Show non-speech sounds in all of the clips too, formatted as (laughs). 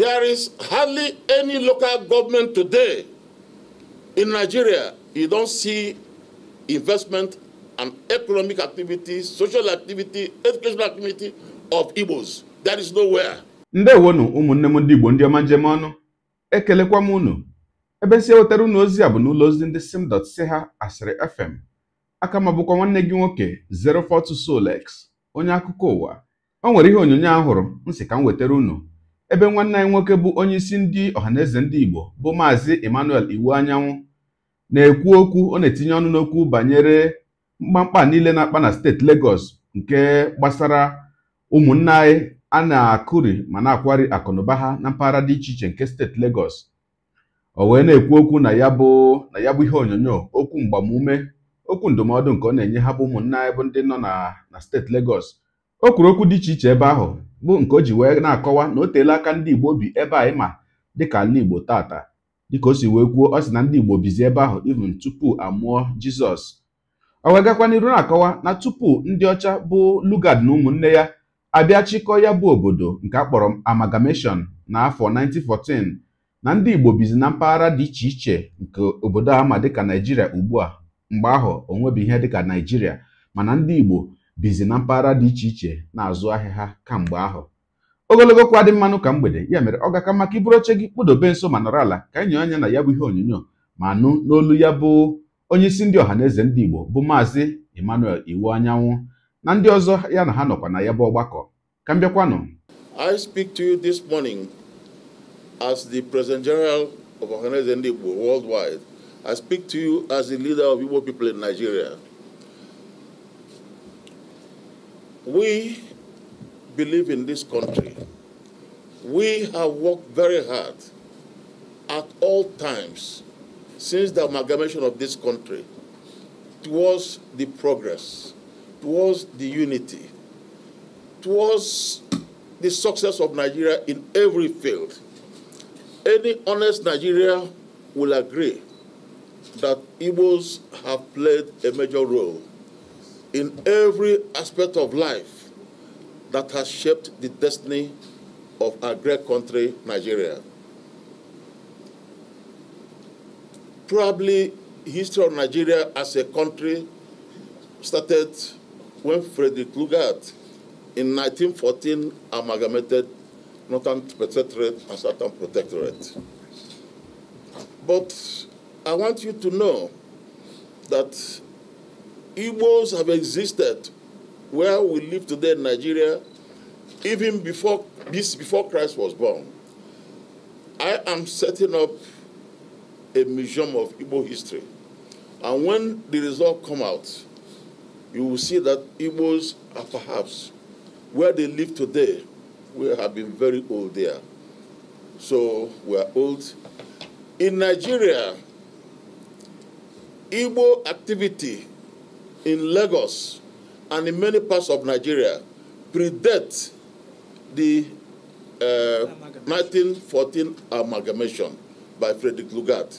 There is hardly any local government today in Nigeria. You don't see investment and economic activity, social activity, educational activity of Igbos. That is nowhere. ndewonu ụmụnne m ndị Igbo ndị ọma njem ọnụ ekelekwa m unu ebe si ewetara unu ozi a bụ n'ụlọ ozi ndị simdot si asịrị fm aka ma nwanne gị nwoke 042 Solex onye akụkọ ụwa o nwere ihe onyonyo ahụrụ m si ka m wetara unu ebe nwanne anyị nwoke bụ onyeisi ndị ọhaneze ndị Igbo bụ maazị Emmanuel Iwu Anyanwụ na-ekwu okwu ọ na-etinye ọnụ n'okwu banyere mkpamkpa niile na-akpa na steeti Lagos nke gbasara ụmụnne anyị a na-akụri ma na-akwari akụnụba ha na mpaghara dị iche iche nke steeti Lagos o wee na-ekwu okwu na ya bụ na ya bụ ihe onyonyo okwu mgbamume okwu ndụmọdụ nke ọ na-enye ha bụ ụmụnne anyị bụ ndị nọ na steeti Lagos o kwuru okwu dị iche iche ebe ahụ bụ nke o ji wee na-akọwa na o teela aka ndị Igbo bi ebe a ịma dịka ala Igbo tata dịka o si wee kwuo ọ sị na ndị Igbo bizi ebe ahụ even tupu amụọ Jizọs o wee gakwa n'iru na-akọwa na tupu ndị ọcha bụ Lugard na ụmụnne ya abịa chịkọọ ya bụ obodo nke a kpọrọ amalgamation na afọ 1914 na ndị Igbo bizi na mpaghara dị iche iche nke obodo ama dịka Naijiria ugbu a mgbe ahụ onwebi ihe dịka Naijiria mana ndị Igbo bizi na mpaghara dị iche iche na-azụ ahịa ha kamgbe ahụ ogologo kwa dị mmanụ ka mgbede ya mere ọ gaka maka iburu oche gị kpụdobe nso ma nọrọ ala ka enyo anya na ya bụ ihe onyonyo ma nụ n'olu ya bụ onye isi ndị ọha eze ndị Igbo bụ maazị Emmanuel Iwu Anyanwụ na ndị ọzọ ya na ha nọkwa na ya bụ ọgbakọ ka m bịakwanụ I speak to you this morning as the President General of Ọha ndị Igbo worldwide. I speak to you as the leader of Igbo people in Nigeria. We believe in this country. We have worked very hard at all times since the amalgamation of this country towards the progress, towards the unity, towards the success of Nigeria in every field. Any honest Nigeria will agree that Igbos have played a major role in every aspect of life that has shaped the destiny of our great country, Nigeria. Probably history of Nigeria as a country started when Frederick Lugard in 1914 amalgamated Northern Protectorate and Southern Protectorate. But I want you to know that Igbos have existed where we live today in Nigeria even before this before Christ was born. I am setting up a museum of Igbo history. And when the result come out, you will see that Igbos are perhaps where they live today, we have been very old there. So we are old. In Nigeria, Igbo activity in Lagos and in many parts of Nigeria predate the uh, 1914 amalgamation by Frederick Lugard.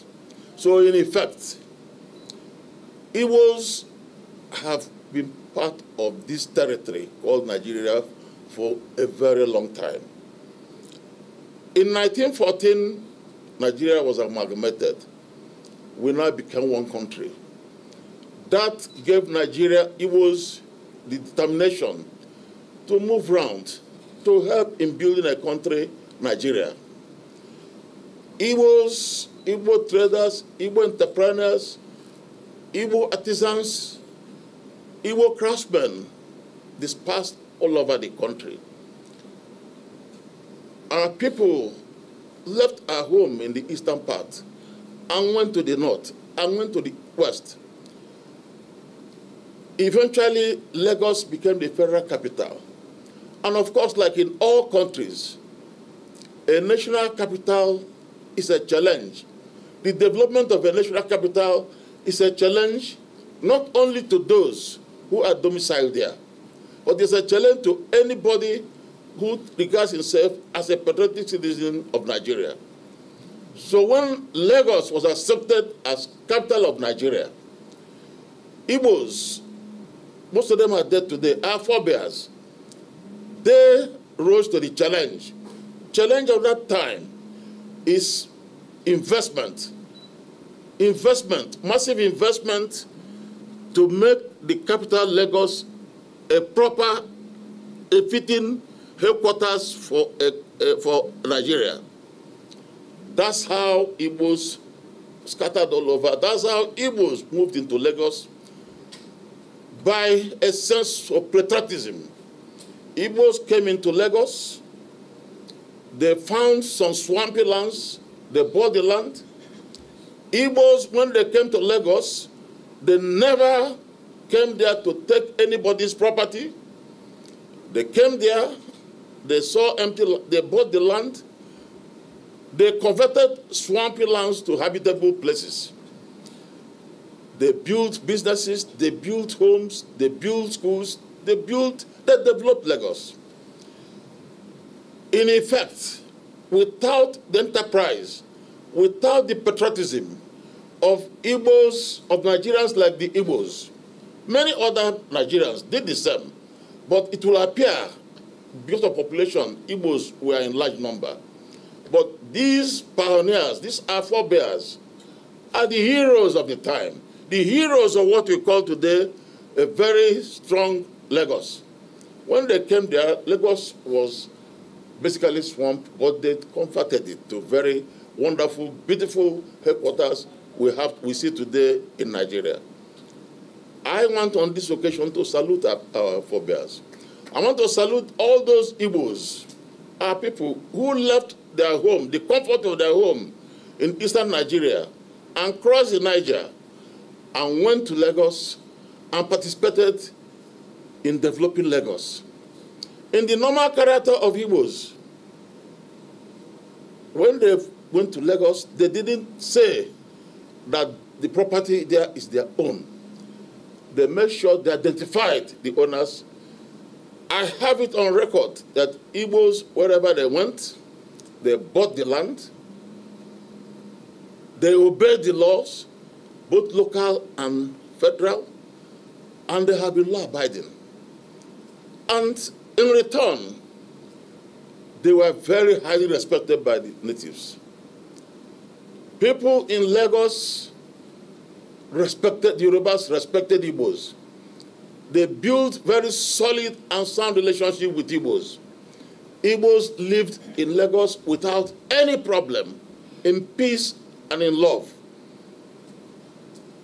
So in effect, was have been part of this territory called Nigeria for a very long time. In 1914, Nigeria was amalgamated. We now became one country. That gave Nigeria was the determination to move round to help in building a country, Nigeria. was Igbo traders, Igbo entrepreneurs, Igbo artisans, Igbo craftsmen dispersed all over the country. Our people left our home in the eastern part and went to the north and went to the west Eventually, Lagos became the federal capital. And of course, like in all countries, a national capital is a challenge. The development of a national capital is a challenge not only to those who are domiciled there, but it's a challenge to anybody who regards himself as a patriotic citizen of Nigeria. So when Lagos was accepted as capital of Nigeria, Igbos most of them are dead today, Our forebears. They rose to the challenge. Challenge of that time is investment. Investment, massive investment to make the capital Lagos a proper, a fitting headquarters for, eh, eh, for Nigeria. That's how it was scattered all over. That's how it was moved into Lagos by a sense of patriotism. Igbos came into Lagos, they found some swampy lands, they bought the land. Igbos, when they came to Lagos, they never came there to take anybody's property. They came there, they saw empty, they bought the land, they converted swampy lands to habitable places. They built businesses, they built homes, they built schools, they built, they developed Lagos. In effect, without the enterprise, without the patriotism of Igbos, of Nigerians like the Igbos, many other Nigerians did the same, but it will appear because of population, Igbos were in large number. But these pioneers, these forebears, are the heroes of the time the heroes of what we call today a very strong Lagos. When they came there, Lagos was basically swamped, but they converted it to very wonderful, beautiful headquarters we have we see today in Nigeria. I want on this occasion to salute our, our forebears. I want to salute all those Igbos, our people who left their home, the comfort of their home in eastern Nigeria, and crossed the Niger and went to Lagos and participated in developing Lagos. In the normal character of Igbos, when they went to Lagos, they didn't say that the property there is their own. They made sure they identified the owners. I have it on record that Igbos, wherever they went, they bought the land, they obeyed the laws, both local and federal, and they have been law abiding. And in return, they were very highly respected by the natives. People in Lagos respected the Yorubas, respected Igbos. They built very solid and sound relationship with Igbos. Igbos lived in Lagos without any problem, in peace and in love.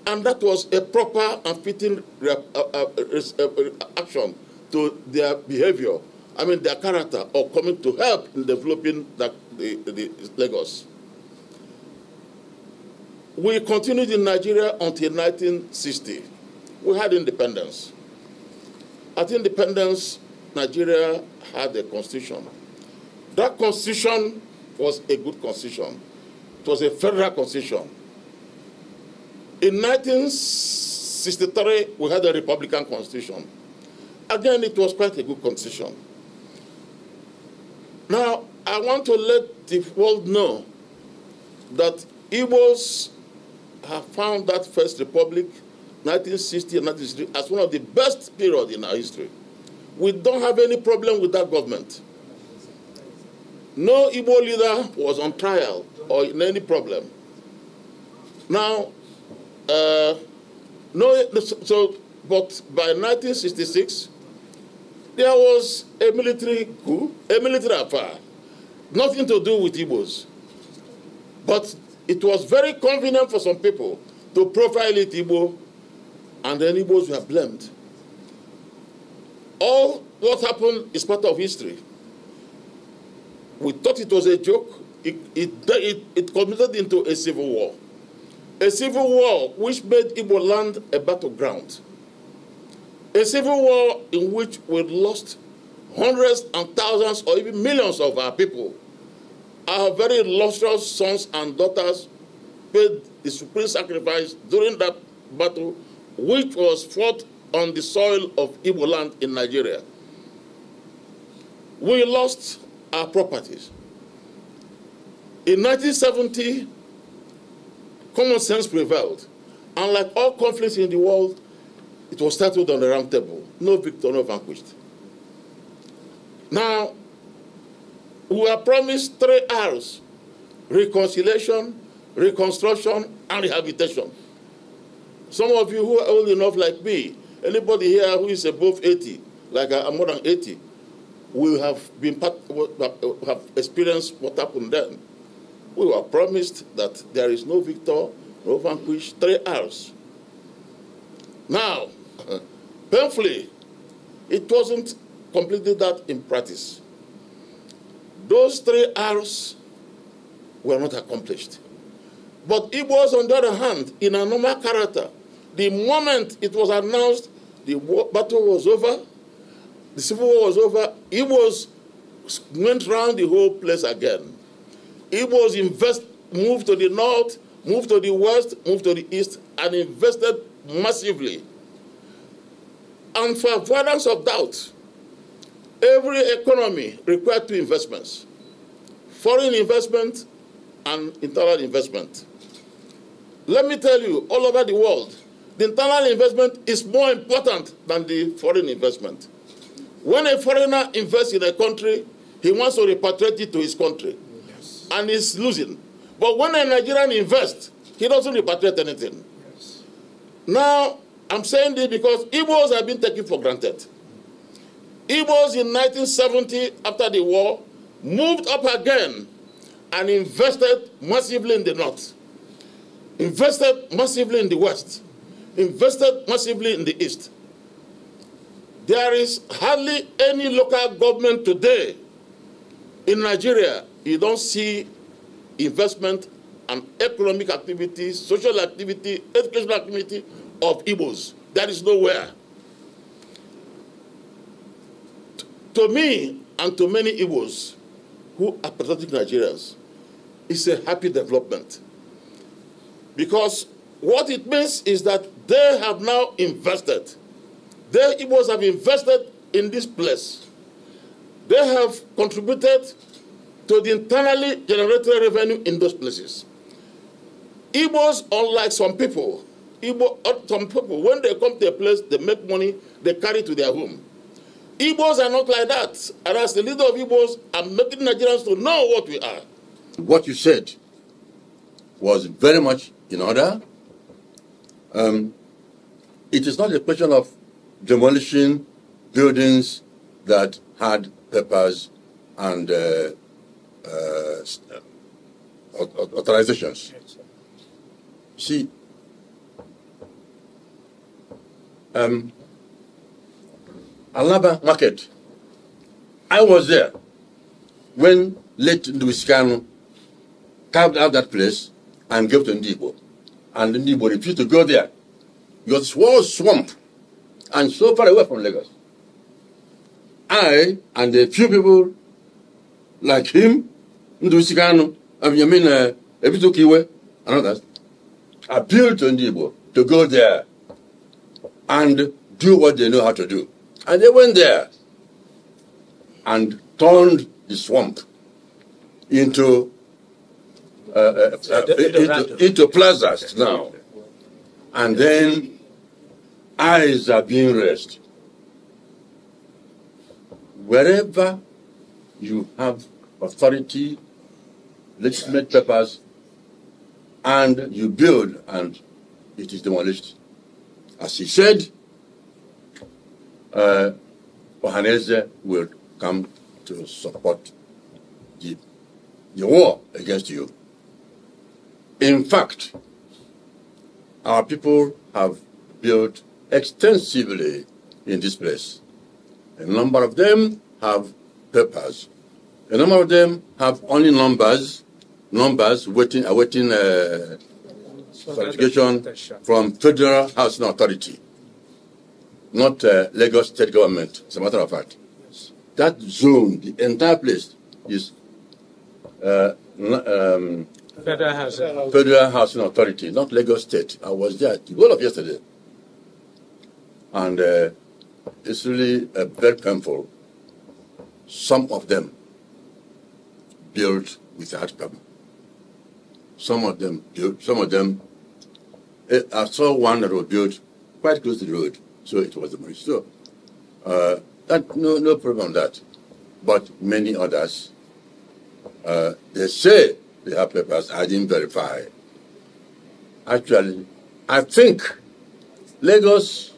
And that was a proper and fitting uh, uh, uh, action to their behavior, I mean their character, or coming to help in developing the, the, the Lagos. We continued in Nigeria until 1960. We had independence. At independence, Nigeria had a constitution. That constitution was a good constitution. It was a federal constitution. In 1963, we had a Republican constitution. Again, it was quite a good constitution. Now, I want to let the world know that Igbos have found that First Republic, 1960 and 1963, as one of the best period in our history. We don't have any problem with that government. No Igbo leader was on trial or in any problem. Now, uh, no, so, but by 1966, there was a military coup, a military affair. Nothing to do with Igbos. But it was very convenient for some people to profile it Igbo, and then Igbos were blamed. All what happened is part of history. We thought it was a joke. It, it, it, it committed into a civil war. A civil war which made Igbo land a battleground. A civil war in which we lost hundreds and thousands or even millions of our people. Our very illustrious sons and daughters paid the supreme sacrifice during that battle, which was fought on the soil of Igbo land in Nigeria. We lost our properties. In 1970, Common sense prevailed. And like all conflicts in the world, it was settled on the round table. No victor, no vanquished. Now, we were promised three R's reconciliation, reconstruction, and rehabilitation. Some of you who are old enough, like me, anybody here who is above 80, like I'm more than 80, will have been part, have experienced what happened then we were promised that there is no victor, no vanquished, three hours. Now, (laughs) painfully, it wasn't completely that in practice. Those three hours were not accomplished. But it was on the other hand, in a normal character, the moment it was announced the war, battle was over, the civil war was over, It was went round the whole place again. Igbos invest, moved to the north, moved to the west, moved to the east, and invested massively. And for avoidance of doubt, every economy required two investments, foreign investment and internal investment. Let me tell you, all over the world, the internal investment is more important than the foreign investment. When a foreigner invests in a country, he wants to repatriate it to his country and he's losing. But when a Nigerian invests, he doesn't repatriate anything. Yes. Now, I'm saying this because Igbos have been taken for granted. Igbos in 1970, after the war, moved up again and invested massively in the north, invested massively in the west, invested massively in the east. There is hardly any local government today in Nigeria you don't see investment and economic activity, social activity, educational activity of Igbos. That is nowhere. T to me and to many Igbos who are patriotic Nigerians, it's a happy development. Because what it means is that they have now invested. They Igbos have invested in this place. They have contributed to the internally generated revenue in those places. Igbos, unlike some people, Igbo, uh, some people, when they come to a place, they make money, they carry to their home. Igbos are not like that. And as the leader of Igbos, I'm making Nigerians to know what we are. What you said was very much in order. Um, it is not a question of demolishing buildings that had purpose and uh, uh, um, authorizations. See, um, Alaba market, I was there when late Louis carved out that place and gave to Ndibo. And Ndibo refused to go there. It was swamp and so far away from Lagos. I and a few people like him ndụchika anụ Abiyamin ebitoka eh, iwe appeal to ndị Igbo to go there and do what they know how to do. And they went there and turned the swamp into uh, uh, uh into, into plazas now. And then eyes are being raised. Wherever you have authority legitimate purpose and you build and it is demolished. As he said, uh, Ohaneze will come to support the, the war against you. In fact, our people have built extensively in this place. A number of them have purpose. A number of them have only numbers numbers waiting, awaiting uh, certification from Federal Housing Authority, not uh, Lagos State Government, as a matter of fact. That zone, the entire place, is uh, um, Federal, Housing. Federal Housing Authority, not Lagos State. I was there the whole of yesterday. And uh, it's really uh, very painful. Some of them built without permit. Some of them built, Some of them. It, eh, I saw one that was built quite close to the road, so it was demolished. So uh, that, no, no problem that. But many others, uh, they say they have papers. I didn't verify. Actually, I think Lagos,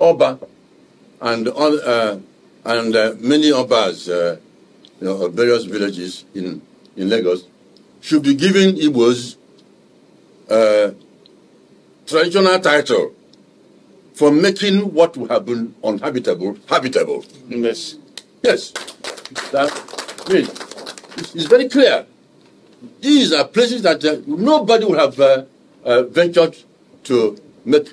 Oba, and uh, and uh, many Obas, uh, you know, various villages in in Lagos should be given Igbos uh, traditional title for making what would have been uninhabitable habitable. Yes. Yes. That means it's very clear. These are places that uh, nobody would have uh, uh, ventured to make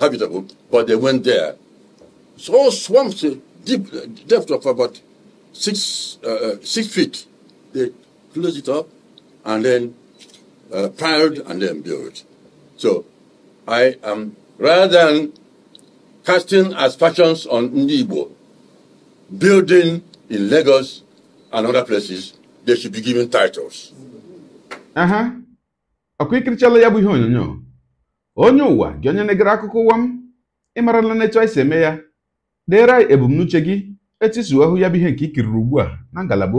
habitable, but they went there. So swamps, uh, deep uh, depth of about six uh, six feet, they close it up, and then uh, piled and then built. So I am, rather than casting aspersions on Nibo, building in Lagos and other places, they should be given titles. Uh-huh. ọkwa ikirichala ya bụ ihe onyonyo onye ụwa gị onye na-egere akụkọ ụwa m ịmarala n'etu anyị si eme ya deere anyị etisuahụ ya bụ ihe nke ikiriri ugbu a na ngalaba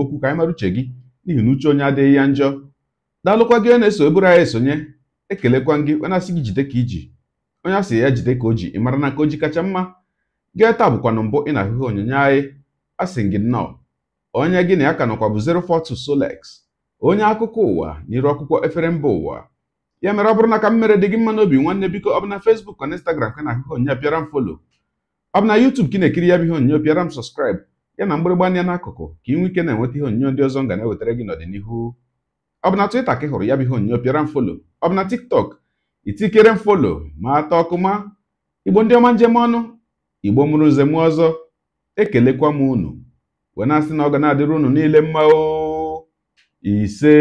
n'ihi na uche onye adịghị ya njọ daalụkwa gị na-eso eburu anyị esonye ekelekwa gị onye asị gị jide ka iji onye asị ya jide ka o ji mara na ka o ji kacha mma gee taa bụkwanụ mbụ ị na-ahụhụ onyonyo anyị asị gị nnọọ onye gị na ya ka nọkwa bụ 042 Solex onye akụkọ ụwa n'iru akwụkwọ efere mba ụwa ya mere ọ bụrụ na ka m mere dị gị mma n'obi nwanne biko ọ bụ na Facebook na Instagram ka na ahụhụ onye bịara m folo ọ bụ na YouTube ka na-ekiri ya bụ ihe onyonyo bịara m ya na mgbịrịgba anya n'akụkụ ka ị nwee ike na-enweta ihe onyinyo ndị ọzọ m ga ewetara gị n'ọdịnihu ọ bụ na Twitter ka ị hụrụ ya bụ ihe onyinyo pịara mfolo ọ bụ na TikTok itikere m folo ma ata ọkụma igbo ndị ọma njem ọnụ igbo mụrụ nze ọzọ ekelekwa m unu wee na-asị na ọ ga na-adịrị unu niile mma o ise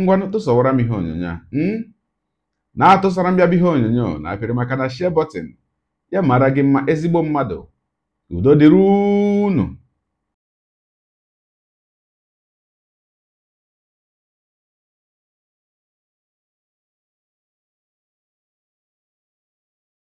ngwanụ tụsọwara m ihe onyonyo a hmm? na-atụsara m ya bụ ihe onyonyo na apịrị maka na share button ya mara gị mma ezigbo mmadụ O dịrị